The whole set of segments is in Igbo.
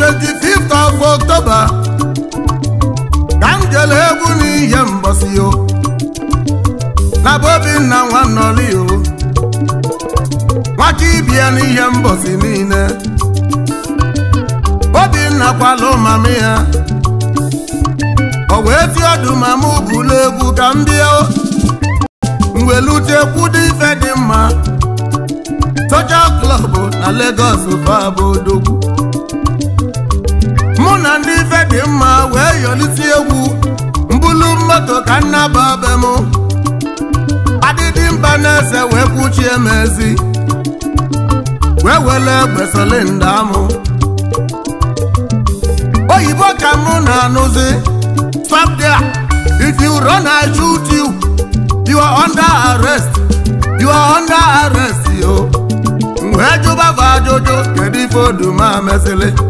25th of October ka egwu n'ihe mbosi yo na bụ nwa Nwanọli yo Nwachi ibia n'ihe mbosi niile Obinna kwalụ mama ya ọ wee ti ọdụ mama bụlu egwu ka m bịa mwelutekwu dị ife dị mma Social Club na Lagos bụ abụ odogwu na ndị ife dị mma wee yọlisi egwu mbụlu moto ka nnaba be m adịdị mba na-ese wee kwuchie m ezi wee wele egbe silinda m oyibo ka mụ na-anụzi stop if you run I shoot you you are under arrest you are under arrest yo wee jụba ajụjụ kedu ife mesịlị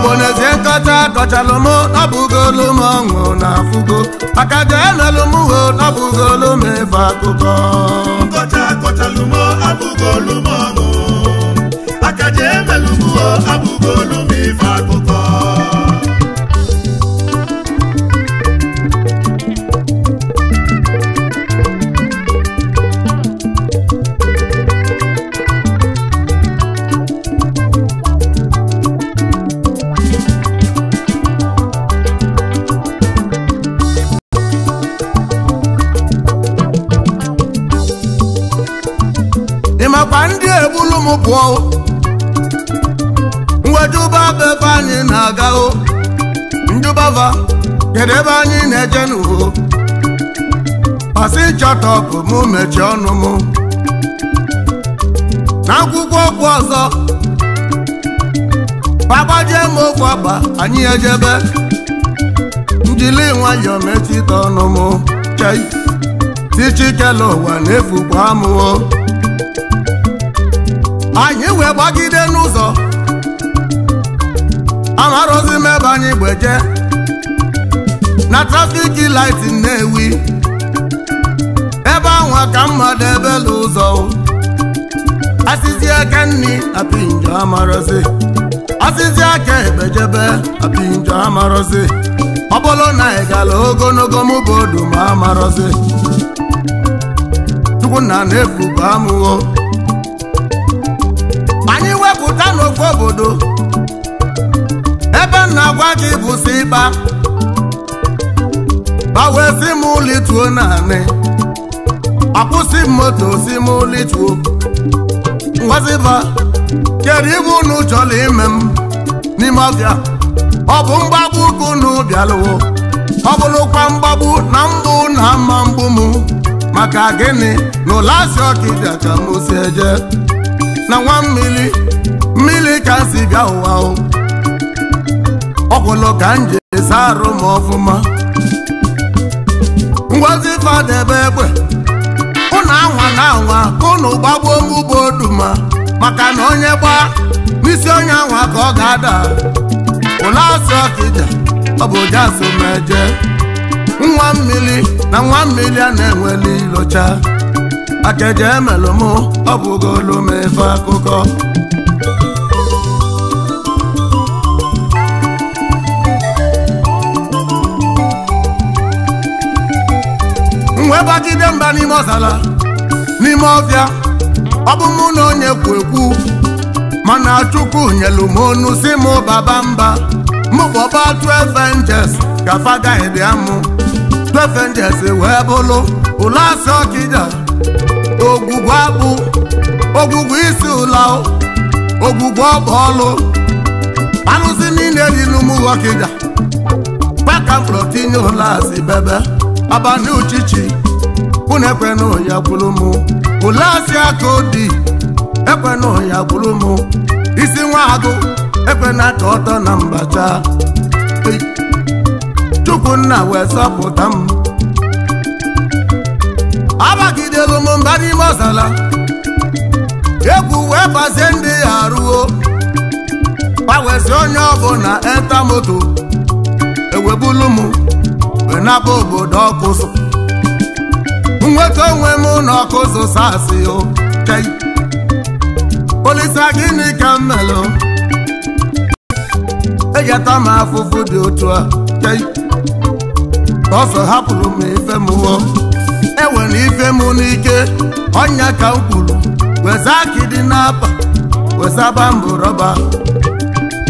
igbo na-ezi nkọcha kọchalụ m ọṅụ na afụgo aka jenelu m ho nọbụgolu akụkọ nkọcha kọchalụ m abụgolu m ọṅụ aka jemelụ ọnwụ pụọ mwejuba bụ ebe anyị na-aga o njubava kedu ebe anyị na-eje n'uho pasi chọtọpụ mụ mechie ọnụ m n'akwụkwọ okwu ọzọ gbagbajie m okwu akpa anyị ejebe njili nwayọọ metụta ọnụ m chei tichikela ụwa na-efukwa amụo anyị wee gbagide n'ụzọ amarozi m ebe anyị gbeje na laiti na ewi. ebe ahụ ka mmadụ ebela ụzọ asịzi aka nni apinjo amarozi asịzi aka ebejebe apinjo amarozi ọ bụrụ na ị ogologo mụ ma amarozi chukwu na na-efu bụ amụghọ nnukwu obodo ebe m na-agwa gị bụsi ịba gbawe si m lituo naanị akwụsị m moto si m lituo ngwaziba kedu ibe unu chọrọ ime m n'ime ọbịa ọ bụ mgbagbu ka unu bịalụwo ọ bụrụkwa mgbagbu na mbụ na mma mbụ m maka gịnị na ụlọ asị ọkịbịa ka m si eje na nwa mmiri mmiri ka si bịa ụwa ọgwụlụ ka m ji esi arụ m ọfụma ngozi fadebe egbe ụnụ anwa na anwa unu ụnụ gbagbuo m ugbo oduma maka na onye gbaa n'isi onye anwa ka ọ ga-ada ụlọ asị ọkija ọ bụ ụdị asụmeje nwa mmiri na nwa mmiri a na-enweli ilocha akeje emelụmụ ọ bụgo olu m akụkọ wee gbagide mba n'ime ọzala n'ime ọbịa ọ bụ mụ na onye kwu ekwu mana chukwu nyelu m onu si mụ baba mba mụ ọba 12 angels ka fada ịbịa mụ 12 angels wee bụlụ ụlọ asị ọkịja ogwugwu akpụ ogwugwu isi ụla ogwugwu ọgba ọlụ arụsị niile dị n'ụmụ ọkịja kpaka mkpọrọ tinye ụlọ asị bebe abani uchichi unu ekwenu ya gwuru mụ ole asị aka odi ekwenu ya gwuru mụ isi nwa agụ ekwena aka ọtọ na mbacha chukwunna wee sọpụta m abagidelu m mba n'ime ọzala egwu wee bazie ndị ya arụo gbanwezi onye ọbụla etamoto ewebulu m wenaba obodo ọkụzụ nweta onwe m n'ọkụzụ sasị kei olisa gịnị ka m melụ egeta m afụfụ dị otu a ọsọ hapụrụ m ife m hụọ ewere ife m n'ike ọnya ka m kwuru weza akị dị n'apa wezaba mbụ rọba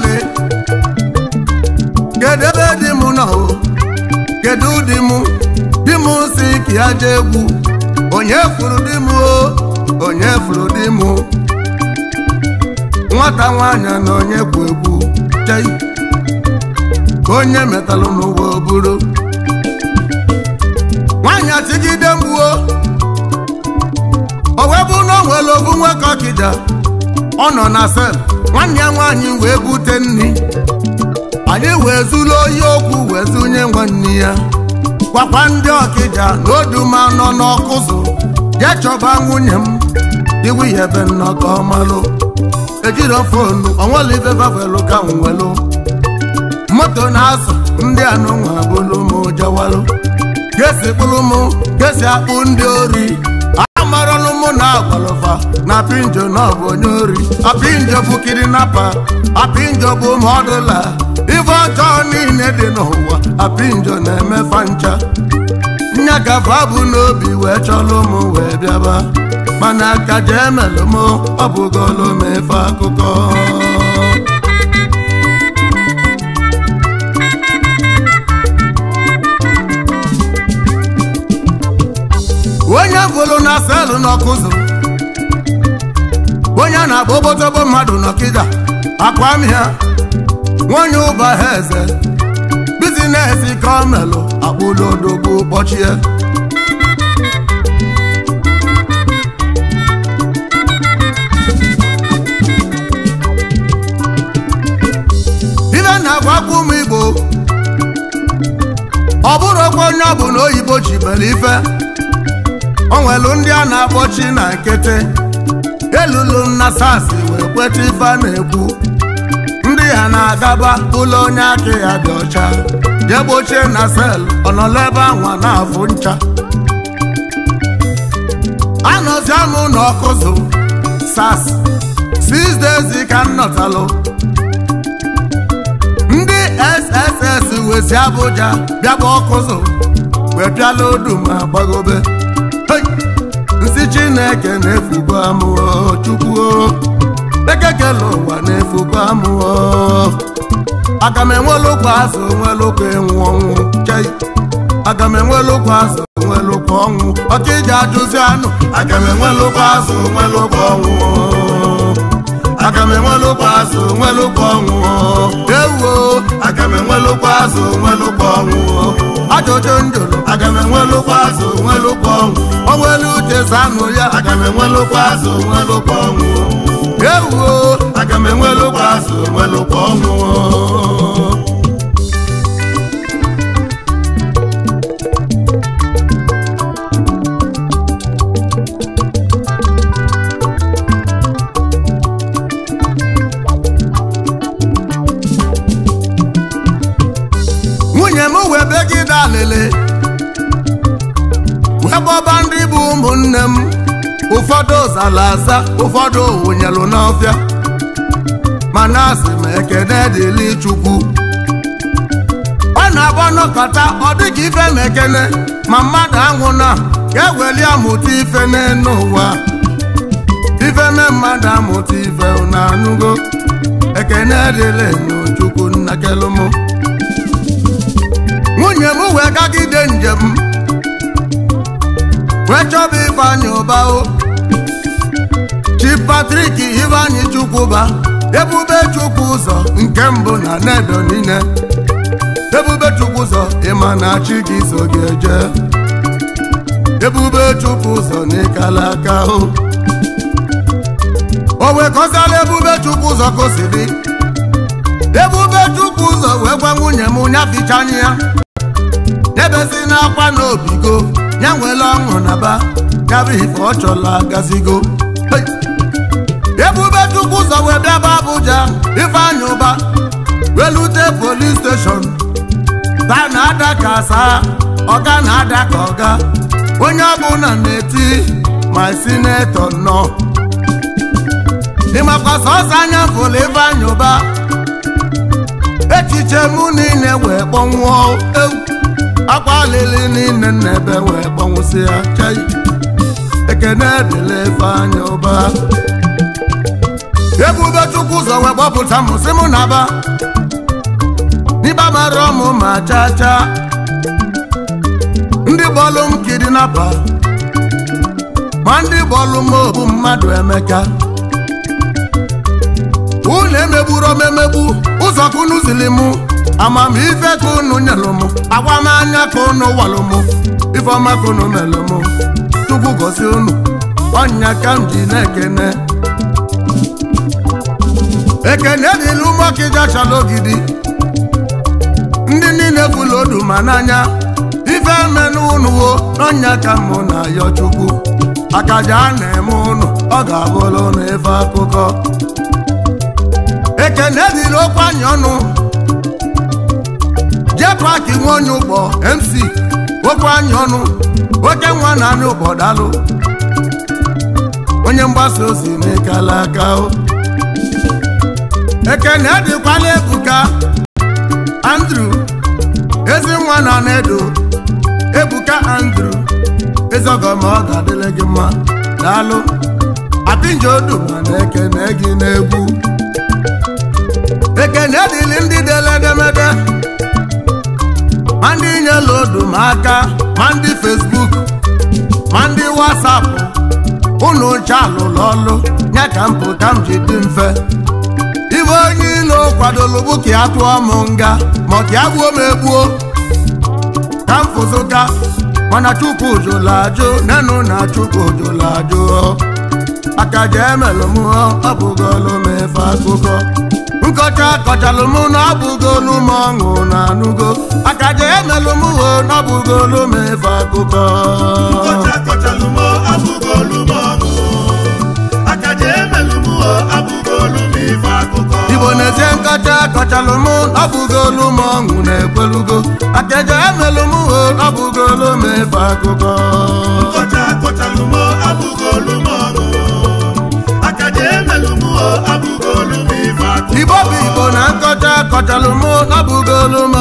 kedu ebe di m nọ kedu di m di mụ si ka aja egwu onye furu di mụ o onye furu di m nwata nwanyị na onye kwu egwu chei onye metalụ n'ụwa oburu nwaanyị atigide mgbuo o wee bụ na o nwere obu nwoke ọ nọ na sel nwanne ya nwaanyị wee bute nri anyị wee zuru oyi okwu wee zụnye nwanne ya gwakwa ndị ọkịja na oduma nọ n'ọkụzụ jee chọba nwunye m iwu ya ebe nnọkọ malụ ejiro fonu onwelivevavelu ka nwelu moto na-azụ ndị anụnwa bụlụ m jawalụ gesi kpụrụ m gesi akpụ ndị ori m na agbalụfa na pinjo na ọ onye ori apinjo bụ kidinapa apinjo bụ ụmụ ọdụla ife ọjọọ niile dị n'ụwa apinjo na-emefa ncha nyagafa bụ n'obi wee chọlụ ụmụ wee bịaba mana ka jee m ọ m akụkọ onye bụrụ na selụ n'ọkụ zụrụ onye na-agba obodobo mmadụ n'ọkịda akwa ya, nwanyị ụba ha eze bizinesi ka ọ melụ akpụlodogbu ụbọchị ibe na igbo ọ bụrụ onye ọ bụ na oyibo ji mere ife onwelu nwelu ndị a na-akpọchi na nkịtị elulu na sas wee kweta ife a na-ekwu ndị ha na-agaba ụlọ onye aka ya dị ọcha je gbochie na sel ọnọlọ ebe anwa na-afụ ncha anọzi anụ n'ọkụzụ ọkụzụ sas ka m ndị sss wezi Abuja bịaba ọkụzụ wee ma si chineke na-efugo amụọ chukwu ekekele ụwa na-efugo amụọ aga m enwelụkwa azụ onwelụkwa ịnwụ ọnwụ chei aga m enwelụkwa azụ onwelụkwa ọnwụ ọka iji ajụzi anụ aga m enwelụkwa azụ onwelụkwa ọnwụ aga m enwelụkwa azụ onwelụkwa ọnwụ ewuo aga m enwelụkwa azụ onwelụkwa ọnwụ ajụjụ ndụlụ aga m enwelụkwa azụ nwelụkwa ọnwụ onwelu uche zanụ ya aga m enwelụkwa azụ nwelụkwa ọnwụ ewuo aga m enwelụkwa azụ nwelụkwa ọnwụ ọba ndị bụ ụmụnne m ụfọdụ zara aza ụfọdụ wụnyelụ n'ọfịa mana asị m ekene dịli chukwu ọ na-agba n'ọkata ọ dịka ife mekene ekene ma mmadụ anwụ na ga-eweli amụta ife n'elu ife na mmadụ amụta ife na anụgo ekene dịlị chukwu nnakelụmụ nwunye m wee gagide njem Fetch bụ Ifeanyi Uba o oh. Chief Patrick Ifeanyi Chukwuba Ebube Chukwu ụzọ nke mbụ na nedo niile Ebube Chukwu ụzọ ịma na chi gị so gị eje Ebube Chukwu ụzọ n'ịkala aka o oh. o wee Ebube Chukwu ụzọ ka Ebube Chukwu ụzọ wee gwa nwunye m nyafichanya ya debezi n'akwa n'obigo ya nwela ọṅụ na ba karịa ife ọ chọla gazigo ebube chukwu ụzọ wee bịaba Abuja ifeanyị ụba welute polis steshọn taa na-ada ka asaa ọga na-ada ka ọga onye ọbụla na-eti ma sinetọ nọ ịmakwa sọsọ anya fụlụ ifeanyị ụba echiche mụ niile wee kpọnwụọ egwu akwa lili niile n'ebe wee gbanwụsị ya ekene dịla ebe anya ụba ebube chukwu ụzọ wee gbapụta m sị m na-aba ọmụ ma chaa chaa ndị bọọlụ m kidinapa ma ndị bọọlụ m obu mmadụ emeka unu emegburu m emegbu ụzọ kunu ziri mụ amamife ka unu nyelụ m anya ka unu walụ m ifeọma ka unu melụ m chukwu gosi unu ọnya ka m ji na-ekene ekene dịla ụmụọkịja chala ogidi ndị niile kwula odu ma n'anya ife menụ unu wo n'ọnya ka mụ na ayọ chukwu akaja a na-eme unu ọ ga-abụrụ na akụkọ ekene dịla okwe anya ọnụ netwak nwe onye ụgbọ mc okwu anyị ọnụ oke nwa na anyị ụgbọ onye mgbasa ozi mekala aka ekene dịkwala ebuka andrew ezi nwa na nedo ebuka andrew ezogoma ọ ga-adịle gị mma daalụ apinjo duma na ekene ma ndị odu m aka ma ndị fesbuk ma ndị wasapụ ụnụ nche alụlụ ọlụ nye ka mpụta m ji dị mfe ibe onye ilo kwadolu bụ ka ya tụọ m nga ma ka gbuo m egbuo ka m fụzụka mana chukwu jụla ajụ nenụ na chukwu jụla ajụ aka emelụ m ọ bụgolu m akụkọ nkọcha kọcha m n'ọbụgolu m ọṅụ na anụgo aka je emelụ m ho n'ọbụgolu m efe akụkọ igbo na-eje nkọcha kọcha m n'ọbụgolu m ọṅụ na-ekwelugo akaja je emelụ m ho n'ọbụgolu m efe akụkọ abụgolu m ọṅụ aka je emelụ ibobu igbo na nkọcha kọchalụ m ọ m